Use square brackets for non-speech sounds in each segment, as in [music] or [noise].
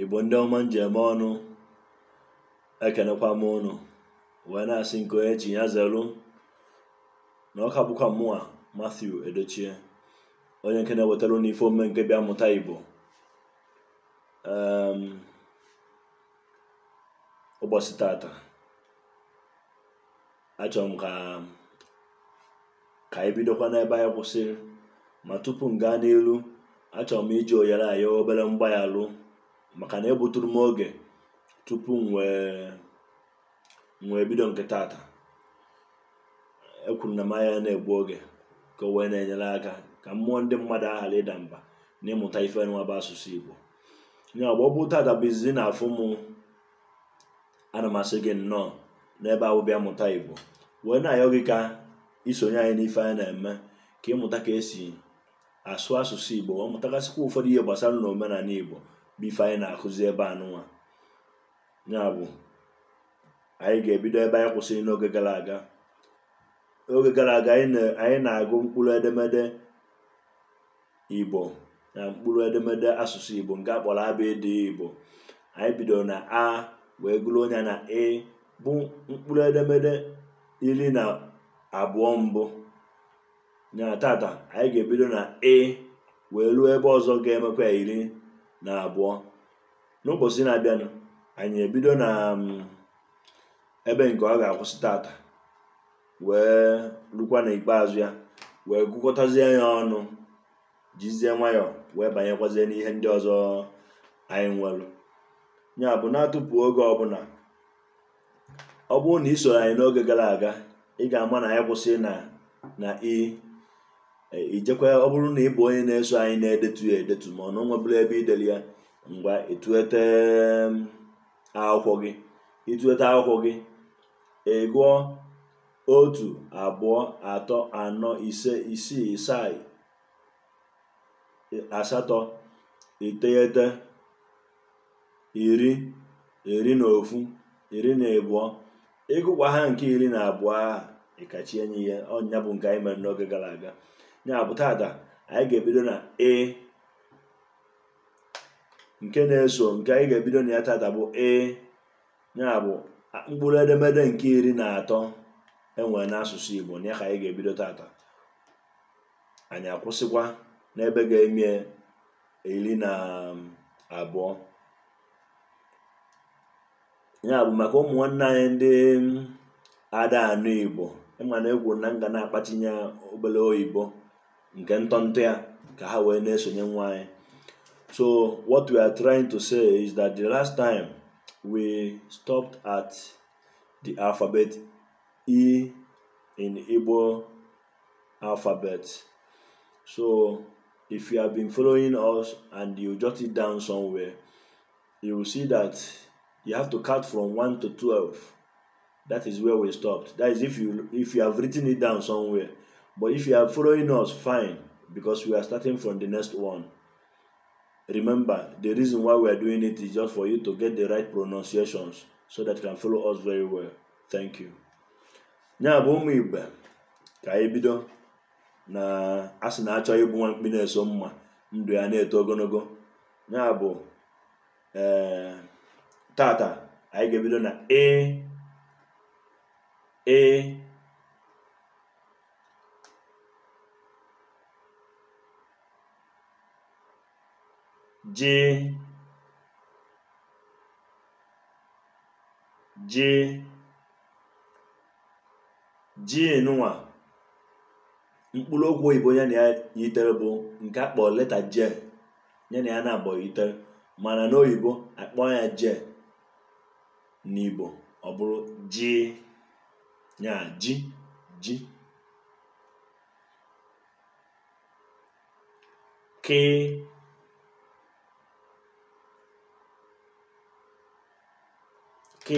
igbo ndị ọma njem ọnụ ekenekwa m ụnụ wee na-asị nke onye chi ya zelu na ọka bụkwa mụnwa Matthew Edochie onye nke na-ewetara ụnụ ife nke bịa mụta igbo ehm, ụbọchị tata achọrọ m ka ka anyị bidokwa n'ebe anyị kwụsịrị ma tupu m gaa n'elu achọrọ m iji oyere ayo obere mgbaghalụ maka na egbuturu m oge tupu m wee bido nke taata ekwuru na m anya na-egbu oge ka o wee na-enyere aka ka mmụọ ndị mmadụ aghara ịda mba na ịmụta ife nwa bụ asụsụ Igbo ya ọ tata taata bụ izizi na afụ m ana m asị gị nnọọ n'ebe ahụ bịa mụta Igbo wee na-ayọ gị ka isonye anyị n'ife anyị na-eme ka ịmụta ka esi asụ asụsụ Igbo wee mụtagasịkwa ụfọdụ ihe gbasara na omenala Igbo bụ anyị na-akụzi ebe anụnwa ya bụ anyị ga-ebido ebe anyị kwụsịrị n'oge gara aga oge gara aga anyị na-agụ mkpụrụ edemede igbo na mkpụrụ edemede asụsụ igbo nke akpọrọ ịdị igbo anyị bidoro na a wee gụrụ onye na e bụ mkpụrụ edemede iri na abụọ mbụ na tata anyị ga-ebido na e wee ruo ebe ọzọ ga-emekwa iri na abụọ n'ụbọchị na-abịanụ anyị ebido na um, ebe nke ọ ga-akwụsị tata wee rukwa ikpeazụ ya wee gụkọtazie ya ọnụ jizie nwayọ wee banyekwazie n'ihe ndị ọzọ anyị nwere ya bụ na-atụpụ oge ọbụla ọ bụrụ na isoro anyị n'oge gara aga ị ga-ama na anyị kwụsị na na i ijekwa ọ bụrụ na ị bụ onye na-eso anyị na-edetu ya edetu ma ọ na nwebụla ebe ideli ya mgbe etuete akwụkwọ gị ịtụete akwụkwọ gị ị otu abụọ atọ anọ ise isii isai asatọ iteghete iri iri na ofu iri na abụọ ịgụkwa ha nke iri na abụọ a ịkachi enyi ya ọnya bụ nke anyị mere n'oge gara aga ya bụ tata anyị ga-ebido na e nke na-eso nke anyị ga-ebido na ya tata bụ e ya bụ mkpụrụ edemede nke iri na atọ enwere n'asụsụ Igbo na ya ka anyị ga-ebido tata anyị akwụsịkwa n'ebe ga-emie iri na um, abụọ ya bụ maka ụmụ nwanne anyị ndị um, ada anụ Igbo ịmana e na egwu na m ga na-akpatinye obele oyibo nke ntọntọ ya ka ha wee na-esonye nwa anyị so what we are trying to say is that the last time we stopped at the alphabet e in igbo alphabet so if you have been following us and you jot it down somewhere you will see that you have to count from 1 to 12 that is where we stopped that is if you if you have written it down somewhere But if you are following us, fine, because we are starting from the next one. Remember, the reason why we are doing it is just for you to get the right pronunciations so that you can follow us very well. Thank you. Ya bụ ụmụ ka anyị bido na asị na-achọ ịbụ nwa mkpi na-eso mma ndụ ya na-eto ogologo ya bụ ee eh, tata anyị ga-ebido na ee e ji ji j nwa mkpụrụ okwu oyibo ya na ya yitere bụ nke akpọ leta j ya na ya na-abọ yitere mana n'oyibo akpọ ya na n'igbo ọ bụrụ ji ya ji ji kee k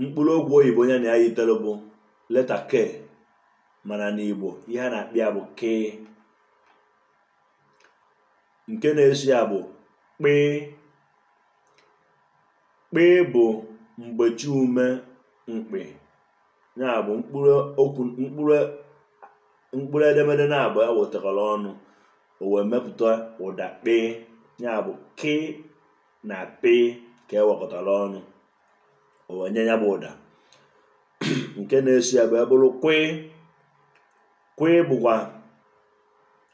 mkpụrụ okwu oyibo onye na ya yitere bụ leta ke mana n'igbo ihe a na-akpị ya bụ k nke na esi ya bụ kpee bụ mgbechi ume mkpị ya bụ mkpụrụ okwu mkpụrụ mkpụrụ edemede na-abụ ya wetara ọnụ o wee mepụta ụda kpee ya bụ k na p ka ewepụtara ọnụ onye ya bụ ụda [clears throat] nke na-esi ya bụ bụrụ kwe kwe bụkwa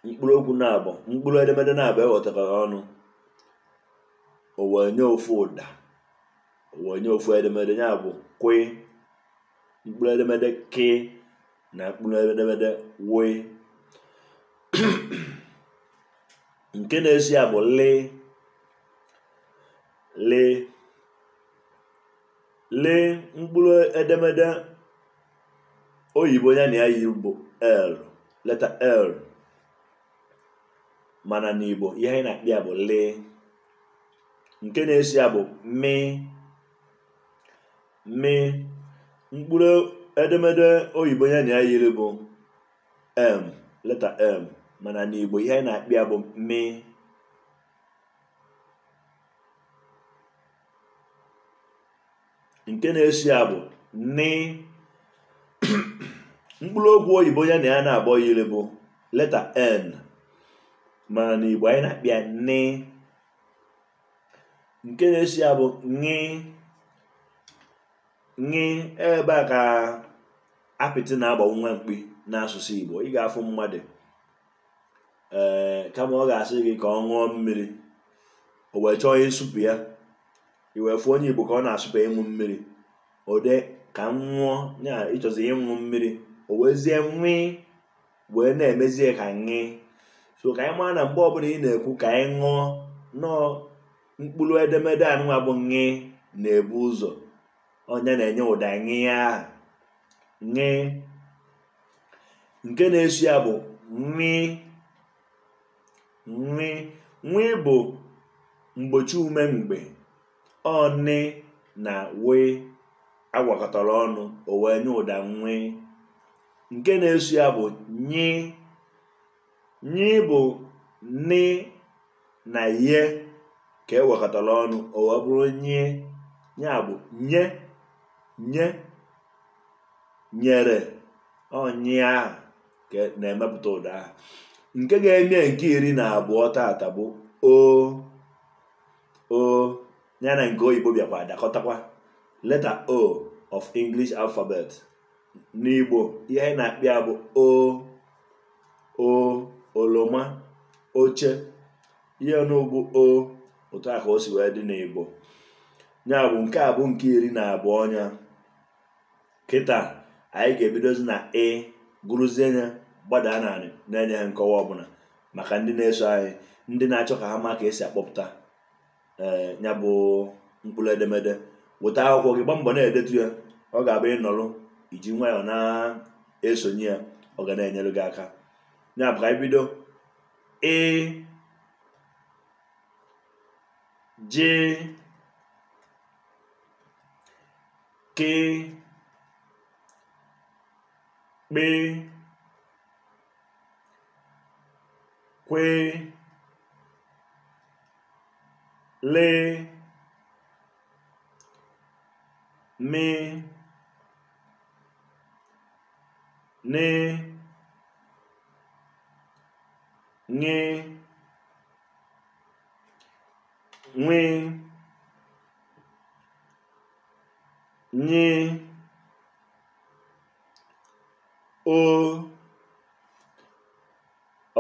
mkpụrụ okwu na abọ mkpụrụ edemede na-abụ ewepụtara ọnụ owenye ofu ụda owenye ofu edemede ya bụ kwe mkpụrụ edemede ke na mkpụrụ edemede wee [clears throat] nke na-esi ya bụ lee lee lee mkpụrụ edemede oyibo ya na ya yi bụ l leta l mana n'igbo ihe anyị na-akpị ya bụ lee nke na-esi ya bụ mi mi mkpụrụ edemede oyibo ya na ya yiri bụ m leta m mana n'igbo ihe anyị na-akpị ya bụ mi nke na-esi ya bụ ni [clears throat] mkpụrụ okwu oyibo ya na ya na-abọ yiri bụ leta n mana na igbo anyị na-akpịa ni nke na-esi ya bụ ni ebe a ka apịtị na agba nwa mkpi n'asụsụ igbo ị ga-afụ mmadụ ee eh, kama ọ ga-asị gị ka ọ ṅụọ mmiri o wee chọọ ịsụpụ ya iwefu onye igbo ka ọ na asụpụ ka ịṅụ mmiri ode ka m ṅụọ ya ịchọzi ịṅụ mmiri o wezie nwee wee na-emezie ka ṅị so ka anyị maa na mgbe ọbụla ị na-ekwu ka anyị ṅụọ nọọ mkpụrụ edemede anụnwa bụ ṅị na-ebu ụzọ onye na-enye ụda ṅị ahụ ṅị nke na esu ya bụ nri nri nri bụ mgbochi ume mgbe ọnị na wee agwakọtara ọnụ o wee nye ụda nwee nke na-eso ya bụ nyi nyi bụ nị na ye ka e gwakọtara ọnụ o wee bụrụ nye ya bụ nye nye nyere ọnyị ahụ na-emepụta ụda ahụ nke ga-eme nke iri na abụọ taata bụ o o ya na nke oyibo bịakwa dakọtakwa leta o of english alphabet n'igbo ihe anyị na-akpị ya bụ o o oloma oche ihe n'ugwu o otu a ka o si wee dị n'igbo ya bụ nke a bụ nke iri na abụọ ọnya kịta anyị ga-ebidozi na ị e, gụrụzie ya gbadaa narị na-enye ha nkọwa ọbụla maka ndị na-eso anyị ndị na-achọ ka ha ma ka esi akpọpụta ee eh, ya bụ mkpụrụ edemede weta akwụkwọ gị gbaa na-edetu ya ọ ga-abụ ịnọrụ iji nwayọọ na-esonye ya ọ ga abụ ịnọrọ iji nwayọọ na esonye ya ọ ga na enyere gị aka ya bụ ka anyị bido ị ji kị lee m nee nge nwee nyee o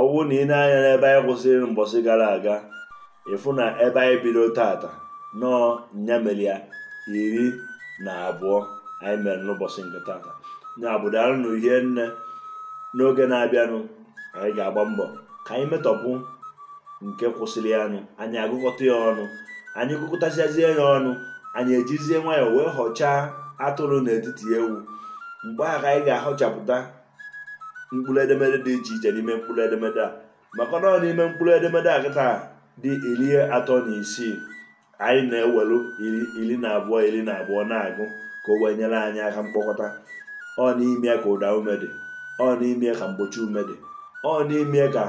ọ na ị na-anya n'ebe anyị kwụsịrị mbọsị gara aga ịfụ na ebe anyị bido tata nọọ nya iri na abụọ anyị mere n'ụbọchị nke tata na bụ na uhie nne n'oge na-abịanụ anyị ga-agba mbọ ka anyị metọpụ nke kwụsịrị anụ anyị agụkọta ya ọnụ anyị gụkọtachazie ya ọnụ anyị ejizie nwayọ wee họchaa atụrụ n'etiti ewu mgbe ahụ anyị ga-ahọchapụta mkpụrụ edemede dị iche iche n'ime mkpụrụ edemede a maka na ọ n'ime mkpụrụ edemede a kịta dị iri atọ na isii anyị na-ewelu iri na abụọ iri na abụọ na-agụ ka o wee nyere anyị aka mkpokọta ọ n'ime ka ụda ume dị ọ n'ime ka mgbochi ume dị ọ n'ime ka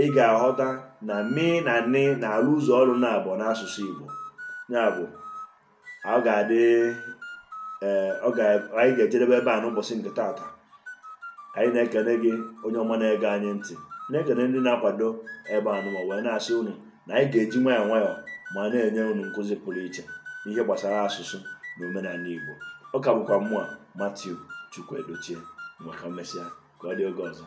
ị ga-aghọta na mi na nni na arụ ụzọ ọrụ na abụọ n'asụsụ Igbo ya bụ ọ ga-adị ee anyị ga-ejedebe ebe a n'ụbọchị nke taata anyị na-ekele gị onye ọma na-ege anyị ntị na-ekele ndị na-akwado ebe anụma wee na-asị unu na anyị ga-eji nwayọọ nwayọọ ma na-enye unu nkụzi pụrụ iche n'ihe gbasara asụsụ na omenala Igbo ọ ka bụkwa mmụọ Matiu Chukwu Edochie maka mmesịa ka ọ dị oge ọzọ